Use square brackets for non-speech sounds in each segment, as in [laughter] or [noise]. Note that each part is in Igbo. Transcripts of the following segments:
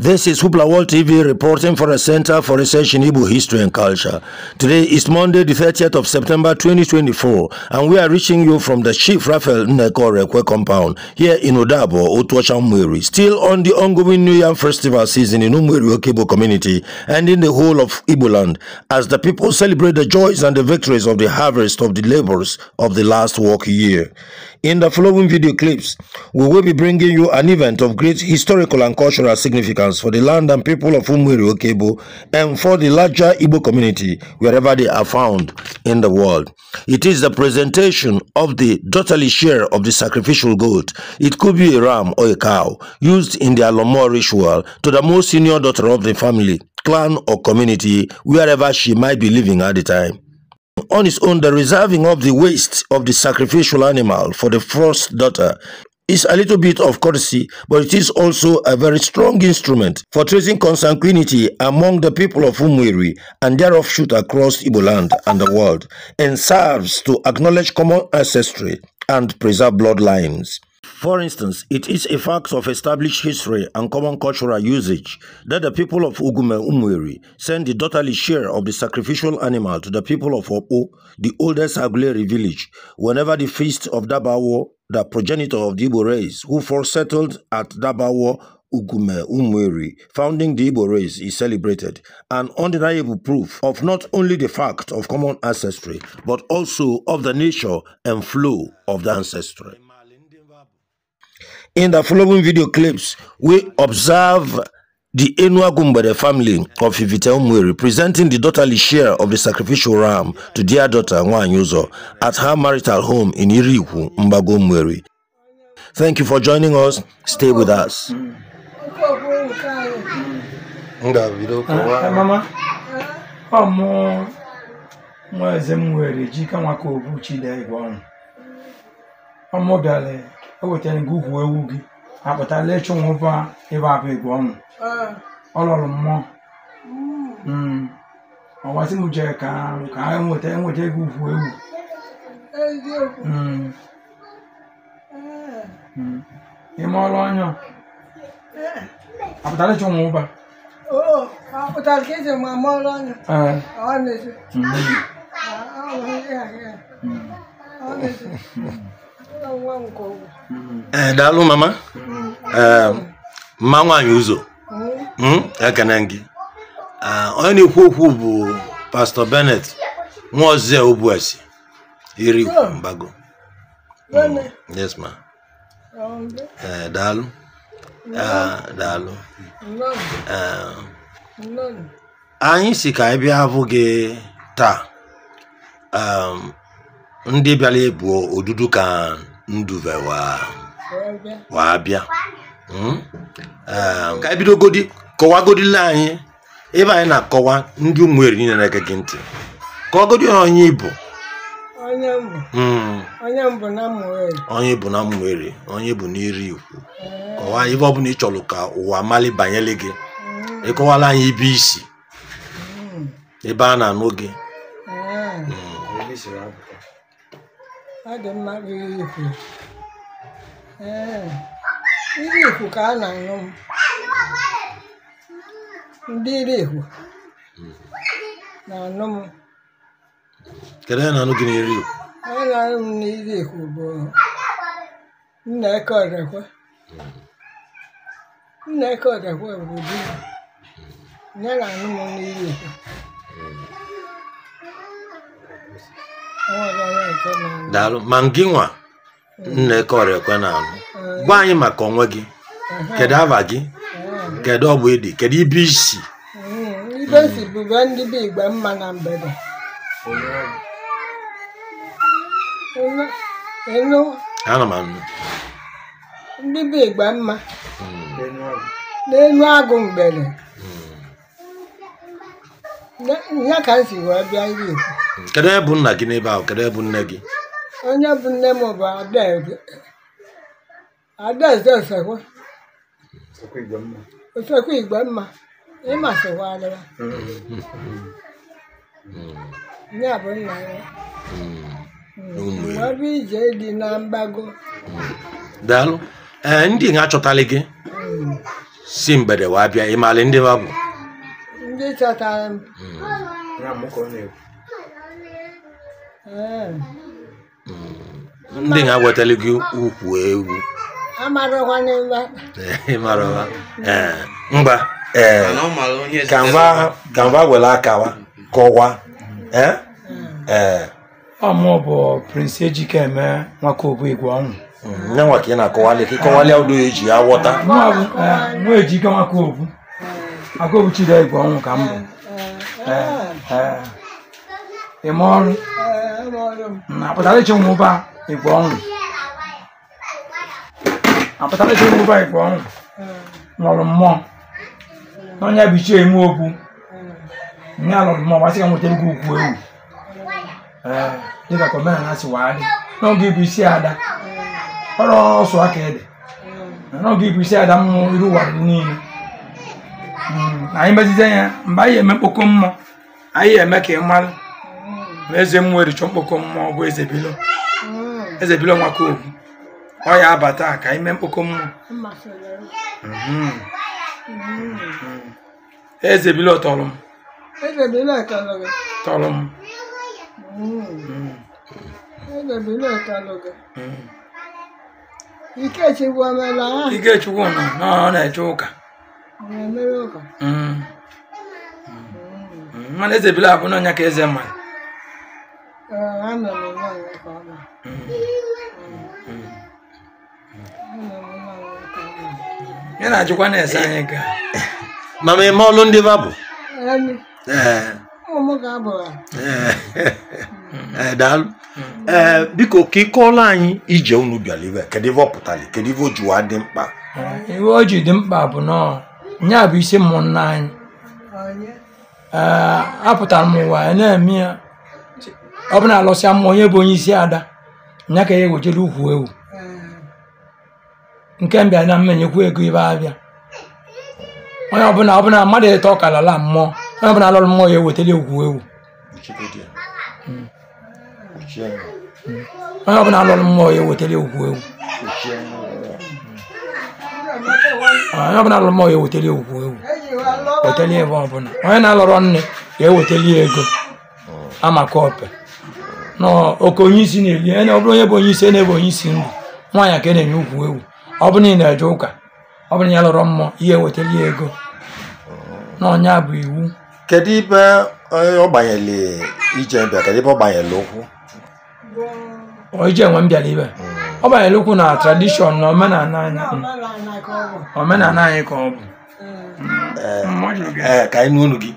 This is Hoopla World TV reporting for the Center for Research in Igbo History and Culture. Today is Monday, the 30th of September 2024, and we are reaching you from the Chief Rafael Nnekorekwe compound here in Odabo, Otuachamweri, still on the ongoing New Year Festival season in Umweri Okebo community and in the whole of Igbo land, as the people celebrate the joys and the victories of the harvest of the labors of the last work year. In the following video clips, we will be bringing you an event of great historical and cultural significance for the land and people of Umwiri Okebo and for the larger Igbo community wherever they are found in the world. It is the presentation of the daughterly share of the sacrificial goat. It could be a ram or a cow used in the Alomor ritual to the most senior daughter of the family, clan or community wherever she might be living at the time on its own the reserving of the waste of the sacrificial animal for the first daughter is a little bit of courtesy, but it is also a very strong instrument for tracing consanguinity among the people of Umwiri and their offshoot across Ibo land and the world, and serves to acknowledge common ancestry and preserve bloodlines. For instance, it is a fact of established history and common cultural usage that the people of Ugume Umwiri send the daughterly share of the sacrificial animal to the people of Opo, the oldest Aguleri village, whenever the feast of Dabawo, the progenitor of the Igbo race, who first settled at Dabawo, Ugume Umweri, founding the Igbo race, is celebrated, an undeniable proof of not only the fact of common ancestry, but also of the nature and flow of the ancestry in the following video clips, we observe the Enua Gumbere family of Ivita Umweri presenting the daughterly share of the sacrificial ram to their daughter Nwanyuzo at her marital home in Iriku, Mbago Thank you for joining us. Stay with us. Ah, mama, ewetara gị ewu gị apụtala ịchụ nwụba ebe apụ igwe ọnwụ ọ mmụọ mm. mm. ọwasị m jere ka ka ha enweta ego ukwu ewu ime ọrụ ọnya apụtala ịchụ nwụba apụtara ọnya ee eh, daalụ mama ee eh, mma nwaanyị ụzọ hmm? ekene gị ah, onye na-ekwu okwu bụ pastọ benet nwa nwaozie obuesi iri mbago hmm. yes ma ee eh, daalụ ah, daalụ anyị si ka anyị bịa hapụ taa um, ndị bịara ebu odudu ka nduve waa bịa hmm? eh, ka ebido bidogodi kọwagodila anyị ebe anyị na-akọwa ndị ụmụ eri niile na-ege gị ntị kọwagodi onye ibu hmm. onye bụ na mmụeri onye bụ n'iri ikwu kọwaa ihe ọ bụla ị chọrọ ka ụwa mali banyere gị hmm. ịkọwala anyị ibe isi ebe a na-anụ gị ọ dị mma riri ikwu ee iri ikwu ka a na-aṅụ m ndị iri ikwu na-aṅụ m kedu ihe na-aṅụ gị n'iri ikwu onye na-aṅụ m n'iri ikwu bụ Nneka Ọdekwe Nneka Ọdekwe bụ di ya na anụ m n'iri ikwu daalụ ma gị nwa nnekọrọ ekwe na-anụ gwa anyị maka onwe gị kedu ava gị kedu ọbụ ịdị kedu ibe isi ndị be mma na hmm. agụ mgbede hmm. ka m si bịa Kedụ onye bụ nna gị n'ebe ahụ? Kedụ onye bụ nne gị? Onye bụ nne m bụ Adaeze. Adaeze Osekwe. Osekwe Igwemma. Ịma sịkwa adịwa. Nye hmm. bụ nna ya. Ọ hmm. bụ hmm. ije dị na mgbago. Daalụ. Ee, ndị achọtala gị si mgbede wee bịa ịmalị ndị babụ ndị chọtara m ndị ha wetara gị ukwu ewu mba ka mba were akawa kọwa hmm. amụ bụ prince ejikeme nwaka hmm, obuigwe ọnwụ nyanwa ka ị na-akọwali ka ịkọwali ụdọ eji ya ejike nwaka obu aka ọnwụ ka m ịma ọrụ apụtara iche ụmụba igwe ọnwụ apụtara iche ụmụba igwe ọnwụ nọrọ mmụọ n'ọnya bụ ichie eme okwu nye alụrụ mmụọ gbasị ka nwetara gị ukwu ewu dịka ka omenala si wee adị n'oge ịbụ isi ada ọrụ ọsọ aka ede n'oge ịbụ isi ada mmụọ iru ụwa dị niile anyị mezite ya mgbe anyị eme mkpokọ mmụọ anyị eme ka ị mara ma eze mmụọ chọọ mkpokọ mmụọ bụ eze bilo eze bilo nwakobu ọ ya abata ka ime mkpokọ mmụọ mhm. eze bilo tọrọ m e tọrọ m mhm. e mhm. ikechukwu e ọ na-eche ụka mana eze bilo abụ n'ọnya ka eze mmadụ Eh, Ana m ya na-ajụkwa na-ese anyị ka ma ma eme ọlụ ndị babụ eh. eh. daalụ ee biko ka ịkọọla anyị ije unu bịara ibe kedu pụtara kedu ife o dị mkpa iwe o ji dị mkpa bụ na ya bụ isi mmụọ nna anyị apụtara m ụwa ya na-eme ya ọ bụ na alọsịa mmụọ onye bụ onye isi ada nya ka ya e ewejere ukwu ewu hmm. nke mbịa na mmenyekwu ego ibe abịa onye ọbụla ọbụla mmadụ eto ọkalala mmụọ onye ọbụla alọrọ mmụọ ya ewetara ukwu ewu hmm. Hmm. onye ọbụla alọrọ mmụọ ya ewetara ukwu ewu onye ọbụla alọrọ mmụọ ya ewetara ukwu ewu wetara ebe ọbụla onye na-alọrọ nne ya ewetara ego oh. amaka ọpe na oke onye isi na-eli onye ọ bụrụ onye bụ onye isi na-ebe onye isi ndụ nwaanyị a ka na-enye ugwu ewu ọ bụ na ị na-eje ụka ọ bụrụ na ya lụrụ mmụọ ihe wetara ya ego ọnya bụ iwu kedu ibe eh, ọ gbanyere ije mbịa kedu ibe ọ gbanyere ụkwụ ije nwe m ibe ọ banyere ụkwụ na tradishọn na omenala anyị ka ọ bụ eh, mm. eh, ka anyị n'unu gị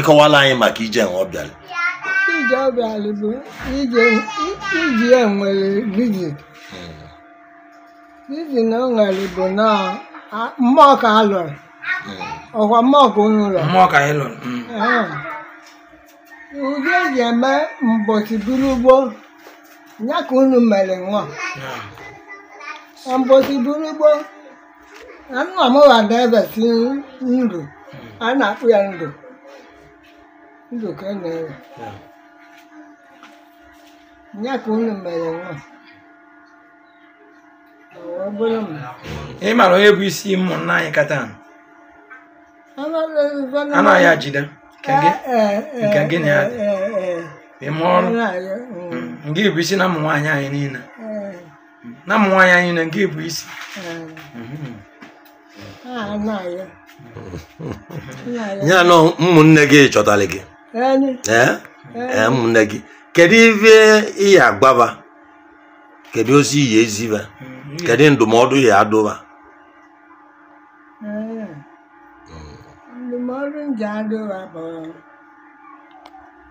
ịkọwala anyị maka ije nwe ọ bịara ije obi ala bụ iji enwere vizi vizi na o nwere bụ na mmụọ ka a lụrụ ọkwa mmụọ ka unu lụrụ mmụọ ka anyị lụrụ udo eji eme mbọchị buru ugbo ya ka unu mere nwa mbọchị buru ugbo na nna m ghada ebesi ndụ a na-akpụ ya ndụ ndụ ka na-ewe ya ka mere nwa ị mara onye bụ isi ụmụnna anyị kata anaghị ajide eh, eh, eh, nke gị na ya dị ịma ọrụ mm. Mm. nke bụ isi na ụmụ nwaanyị anyị niile na ụmụ nwaanyị anyị niile nke bụ isi ah, [laughs] ya na ụmụnne gị chọtara gị ụmụnne gị kedu ife ihe ya agwaba kedu ozi ihe eziba hmm. kedu ndụmọdụ ya adụba hmm. ndụmọdụ nje adụba bụ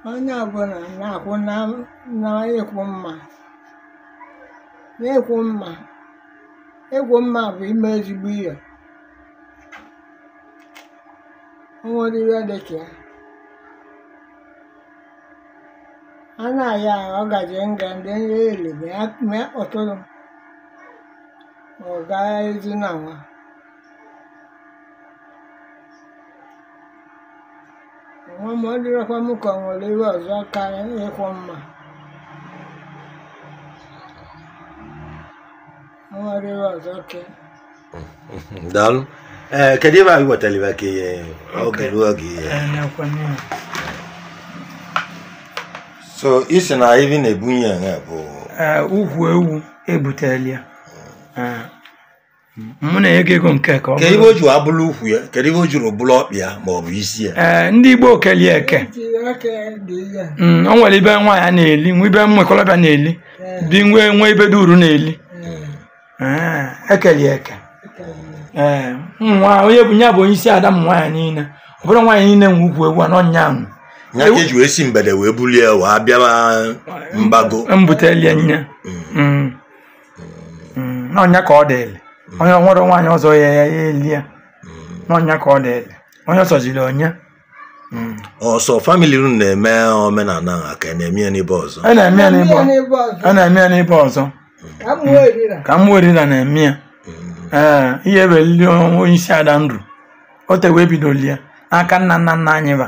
onye ọbụla na-akwụ na ịkwụ mma ịkwụ mma ịkwụ mma bụ ime ezigbo ihe o ihe dịka ya ana ya ọgaji nga ndị nye elebe ya mee ọtụtụ ọga ezi na nwa nwa ma ọ dịrọkwa m ka ọ nwere ihe ọzọ karịa ịkwọ mma nwere ihe ọzọ ke daalụ ee eh, kedu ebe anyị wetara ibe eh, ka ihe oge ruo oge ihe eh. so isi na ibi na-ebunye ya bụ ugwu ewu ebutela ya mụ na enye ego nke ka ọ bụrụ ibe o juru abụrụ ukwu ya kedu ibe o juru bụrụ ọkpị ya ma ọ bụ isi ya ndị Igbo kelie eke o nwere ibe nwaanyị na-eli nwa ibe mmekọrọbịa na-eli bi nwe nwe ibe duru na-eli ekelie eke nwa onye bụ ya bụ onye isi ada m nwaanyị niile ọ bụrụ nwaanyị niile nwe ugwu ewu anọ nyaahụ ya ka eji wee si mgbede wee bulie wa bịara mbago mbutelie nne mm. n'ọnya mm. mm. ka ọ dịịlị onye nwere nwaanyị ọzọ ya ya eli ya n'ọnya ka ọ dịịlị onye ọsọziri onye ọsọ famili unu na-eme omenala a ka na-eme ya n'ebe ọzọ a na-eme ya n'ebe ọzọ ka m erina na-eme ya ee ihe welili onye isi ada ndụ o tewe ebidolie aka nna nna nna anyị ba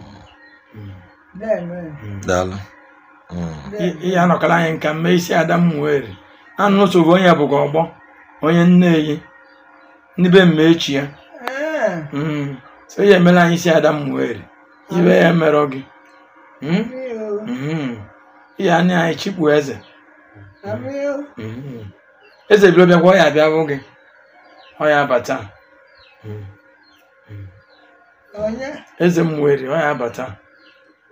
daalụ ihe anọkọla anyị nka mme isi Adam m were anụ nsogbu onye bụkwa ọgbọ onye nne nneyi n'ibe mme echi ya hmm. so ya emela anyị isi Adam m were ibe ya merọ gị ihe hmm? hmm. anya anyị chikpu eze eze biro bịakwa ọ ya abịa bụ gị ọ ya abata eze m nwere ọ ya abata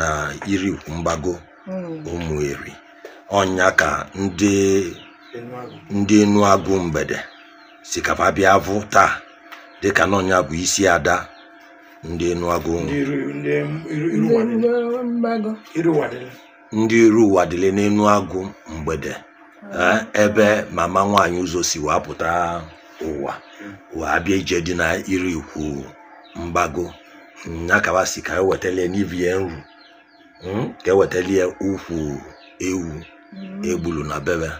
na iri Mgbago hmm. Ụmụeri ọnya ka ndị ndị agụ mgbede sikapa bịa vụ taa dịka na bụ isi ada ndị agụ ndị iru ụwa dịle agụ mgbede hmm. eh, ebe mama nwaanyị ụzọ si wee pụta ụwa wee bịa ije dị na ikwu Mgbago ya si ka ewetala n'ibie nru Hmm? ka ewetali ya ukwu ewu hmm. egbulu na bebe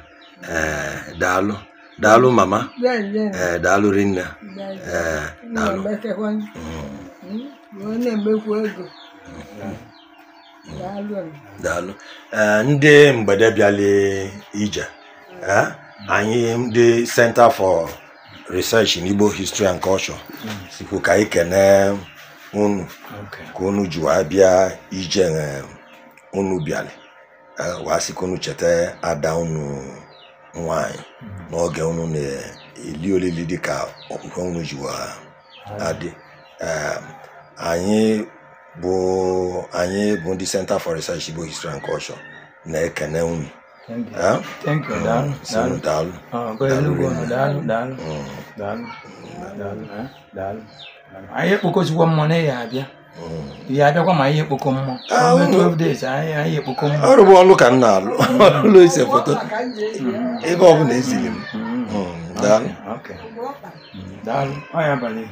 eh, daalụ daalụ hmm. mama ee eh, daalụ rinne eh, daalụ daalụ ndị mgbede bịali ije ee anyị ndị Center for Research in Igbo History and Culture sikwu ka anyị kene unu ka unu ji wee bịa ije e, unu bịara e, wee sị ka unu cheta ada unu nwanyị mm-hmm. n'oge unu na-eli olili dịka okwukwe unu ji adị e, anyị bụ anyị bụ ndị Center for Research Igbo History and Culture na-ekene unu mm, daalụ anyị ekpokọzikwa mmụọ na ya abịa hmm. ya abịakwa ma ihe kpoko mmụọ ah, anyị ekpoko ọrụ bụ ọlụ ka na-alụ hmm. [laughs] ụlọ ise foto hmm. ebe ọ eziri m daalụ